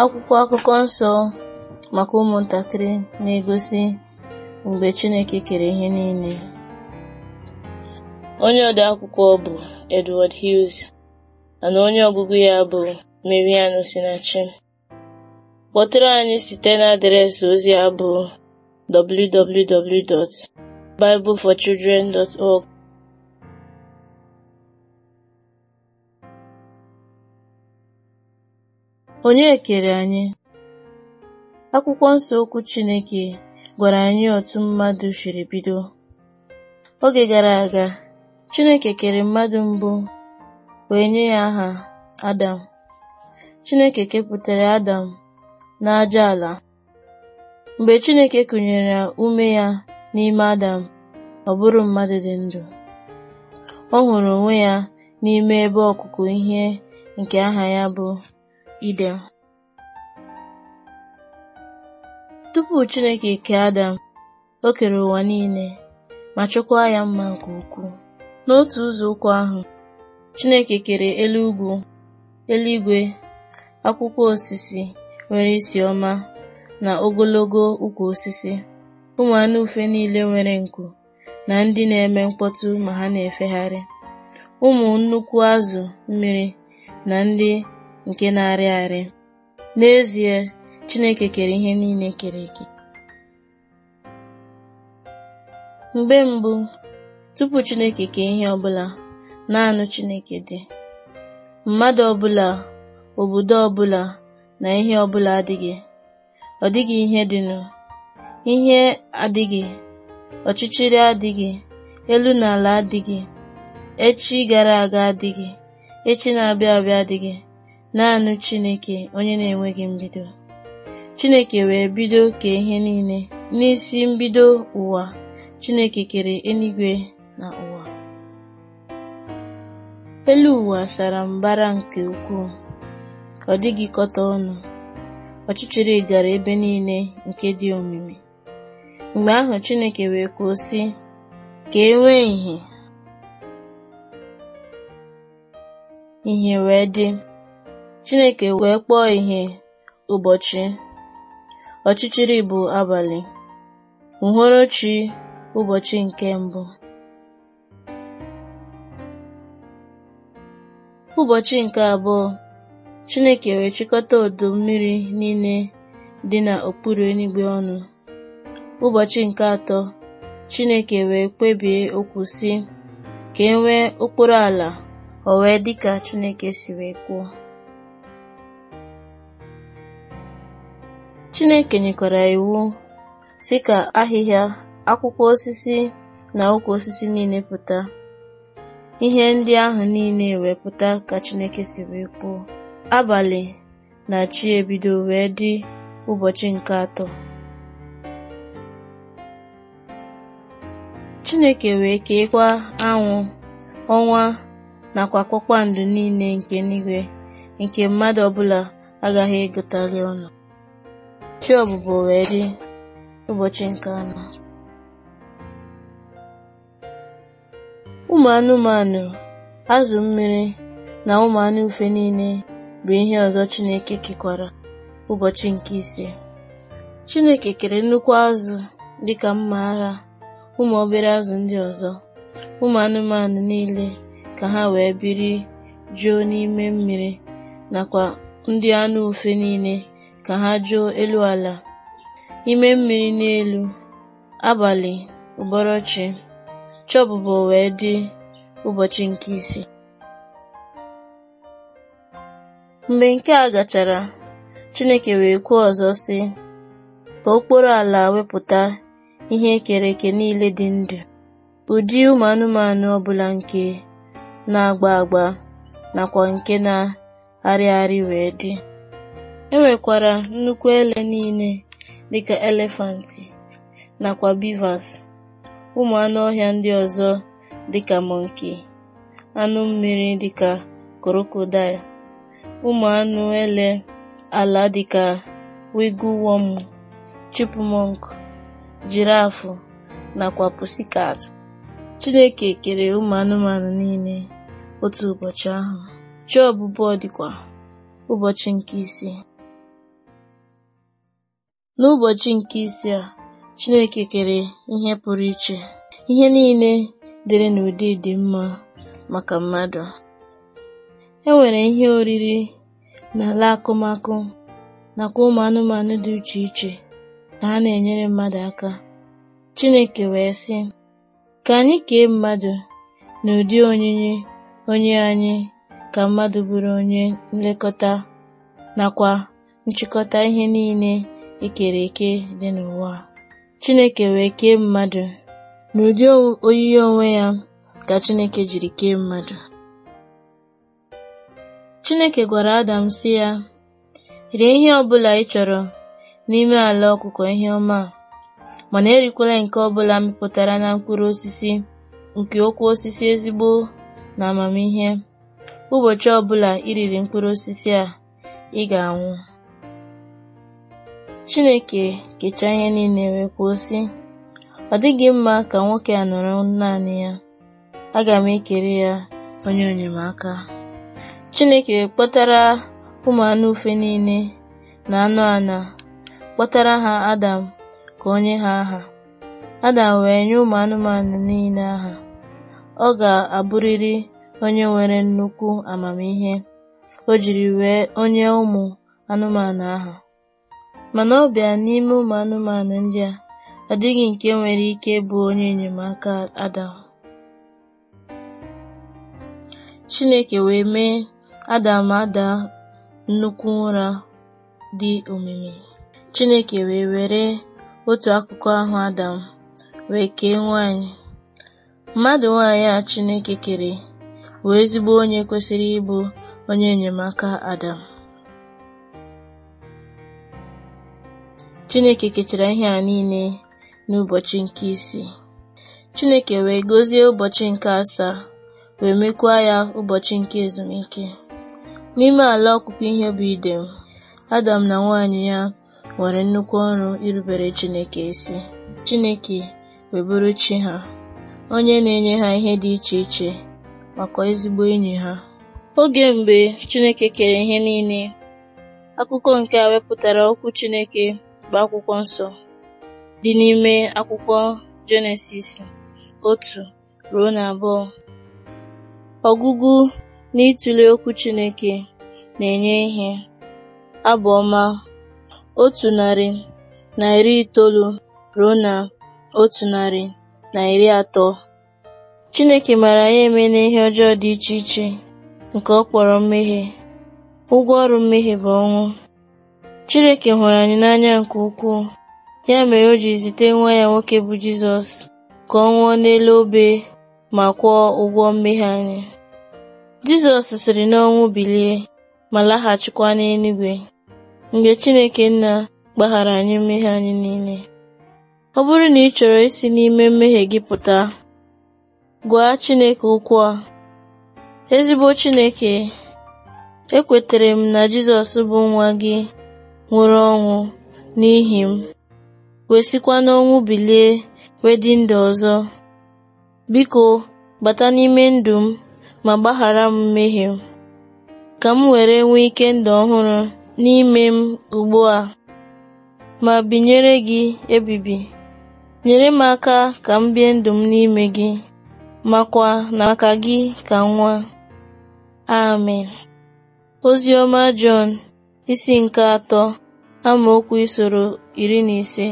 Akwụkwọ akụkọ nsọ maka ụmụntakịrị na-egosi mgbe Chineke kere ihe niile. Onye ode akwụkwọ bụ Edward Hughes mana onye ọgụgụ ya bụ mariano Sinachi. Kpọtụrụ anyị site na adreesị ozi a bụ www.bibleforchildren.org Onye kere anyị? Akwụkwọ nsọ okwu Chineke gwara anyị otu mmadụ siri bido. Oge gara aga, Chineke kere mmadụ mbụ wee nye ya aha Adam. Chineke kepụtara Adam n'aja ala. Mgbe Chineke kụnyere ume ya n'ime Adam, ọ bụrụ mmadụ dị ndụ. Ọ hụrụ onwe ya n'ime ebe ọkụkụ ihe nke aha ya bụ Iden Tupu Chineke kee Adam, o kere ụwa niile ma chọkwaa ya mma nke ukwuu. N'otu ụzọ ụzọụkwụ ahụ, Chineke kere elu ugwu, eluigwe, akwụkwọ osisi nwere isi ọma na ogologo ukwu osisi, ụmụ anụ ufe niile nwere nku na ndị na-eme mkpọtụ ma ha na-efegharị, ụmụ nnukwu azụ mmiri na ndị nke na-arị arị n'ezie Chineke kere ihe niile kere eke mgbe mbụ tupu Chineke kee ihe ọbụla naanị Chineke dị mmadụ ọbụla obodo ọbụla na ihe ọbụla adịghị ọ dịghị ihe dịnụ ihe adịghị ọchịchịrị adịghị elu na ala adịghị echi gara aga adịghị echi na-abịa abịa adịghị naanị Chineke onye na-enweghị mbido Chineke wee bido kee ihe niile n'isi mbido ụwa Chineke kere eluigwe na ụwa elu ụwa sara mbara nke ukwuu ka ọ dịghị ọnụ ọchịchịrị gara ebe niile nke dị omimi mgbe ahụ Chineke wee kwuo sị ka e nwee ìhè wee dị Chineke wee kpọọ ihe ụbọchị, ọchịchịrị bụ abalị, uhuruchi ụbọchị nke mbụ. Ụbọchị nke abụọ, Chineke wee chịkọta odo mmiri niile dị n'okpuru eluigwe ọnụ. Ụbọchị nke atọ, Chineke wee kpebie okwu si ka e nwee okporo ala, o wee dị ka Chineke si wee kwuo. Chineke nyekwara iwu sị ka ahịhịa akwụkwọ osisi na ụkwụ osisi niile pụta ihe ndị ahụ niile wee pụta ka Chineke si wee kwuo abalị na chi ebido wee dị ụbọchị nke atọ Chineke wee keekwa anwụ ọnwa nakwa kpakpando niile nke n'igwe nke mmadụ ọbụla agaghị egotali ọnụ Chiọbụbụ wee dị ụbọchị nke anọ Ụmụ anụmanụ, azụ mmiri na ụmụ anụ ufe niile bụ ihe ọzọ Chineke kekwara ụbọchị nke ise Chineke kere nnukwu azụ dịka mma agha ụmụ obere azụ ndị ọzọ ụmụ anụmanụ niile ka ha wee biri juo n'ime mmiri nakwa ndị anụ ufe niile na ha jụọ elu ala, ime mmiri n'elu, abalị ụbọrọchi, chọbụbọ wee dị ụbọchị nke isi. Mgbe nke a gachara, Chineke wee kwuo ọzọ sị, ka okporo ala wepụta ihe ekere niile dị ndụ, ụdị ụmụ anụmanụ ọbụla nke na-agba agba nakwa nke na arịgharị wee dị E nwekwara nnukwu ele niile dịka elefanti, nakwa beavers, ụmụ anụ ọhịa ndị ọzọ dịka monkey, anụ mmiri dịka crocodile, ụmụ anụ ele ala dịka wigglewọm, chipmunk, jirafu nakwa pussycat. Chineke kere ụmụ anụmanụ niile otu ụbọchị ahụ. Chi ọbụbọ dịkwa ụbọchị nke isii. N'ụbọchị nke isi a, Chineke kere ihe pụrụ iche. Ihe niile dịrị n'ụdị dị mma maka mmadụ. E nwere ihe oriri na ala akụmakụ nakwa ụmụ anụmanụ dị uche iche na ha na-enyere mmadụ aka. Chineke wee sị, ka anyị kee mmadụ n'ụdị onyinye onye anyị ka mmadụ bụrụ onye nlekọta nakwa nchịkọta ihe niile e kere eke dị n'ụwa Chineke wee kee mmadụ n'ụdị oyiyi onwe ya ka Chineke jiri kee mmadụ. Chineke gwara Adam si ya, rie ihe ọ bụla ị chọrọ n'ime ala ọkụkọ ihe ọma mana erikwala nke ọbụla mịpụtara na mkpụrụ osisi nke okwu osisi ezigbo na amamihe ụbọchị ọbụla iriri mkpụrụ osisi a ị ga-anwụ Chineke kechaa ihe niile wee kwuo sị, “Ọ dịghị mma ka nwoke a nọrọ naanị ya, aga m ekere ya onye enyemaka.” Chineke kpọtara ụmụ anụ ufe niile na anụ ana, kpọtara ha Adam ka onye ha aha. Adam wee nye ụmụ anụmanụ niile aha. Ọ ga-abụrịrị onye nwere nnukwu amamihe o jiri wee onye ụmụ anụmanụ aha. mana ọ bịa n'ime ụmụ anụmanụ ndị a, ọ dịghị nke nwere ike bụ onye enyemaka Adam. Chineke wee mee Adam ada nnukwu ụra dị omimi. Chineke wee were otu akụkụ ahụ Adam wee kee nwanyị. Mmadụ nwanyị a Chineke kere wee ezigbo onye kwesịrị ịbụ onye enyemaka Adam. Chineke kechara ihe a niile n'ụbọchị nke isii. Chineke wee gọzie ụbọchị nke asaa wee mekwa ya ụbọchị nke ezumike. N'ime ala ọkụkụ ihe bụ Idem, Adam na nwanyị ya nwere nnukwu ọrụ irubere Chineke isi. Chineke wee chi ha, onye na-enye ha ihe dị iche iche makwa ezigbo enyi ha. Oge mgbe Chineke kere ihe niile, akụkọ nke a wepụtara okwu Chineke bụ akwụkwọ nsọ dị n'ime akwụkwọ Jenesis otu ruo na abụọ. Ọgụgụ na ịtụle okwu Chineke na-enye ihe. abụọma ọma otu narị na iri itoolu ruo na otu narị na iri atọ. Chineke mara ya eme n'ihe ọjọọ dị iche iche nke ọ kpọrọ mmehie. Ụgwọ ọrụ mmehie bụ ọnwụ. Chineke hụrụ anyị n'anya nke ukwuu ya mere o ji zite nwa ya nwoke bụ Jizọs ka ọ nwụọ n'elu obe ma kwụọ ụgwọ mmehie anyị. Jizọs siri n'ọnwụ bilie ma laghachikwa n'eluigwe mgbe Chineke nna gbaghara anyị mmehie anyị niile. Ọ bụrụ na ị chọrọ isi n'ime mmehie gị pụta, gwa Chineke okwu a. Ezigbo Chineke, ekwetere m na Jizọs bụ nwa gị nwụrụ ọnwụ n'ihi m wee sikwa n'ọnwụ bilie wee dị ọzọ biko bata n'ime ndụ m ma gbaghara m mmehie m ka m were nwee ike ndụ ọhụrụ n'ime m ugbu a ma binyere gị ebibi nyere m aka ka m bie ndụ m n'ime gị makwa na maka gị ka nwa amen ozioma Jọn isi nke atọ amaokwu isoro iri na ise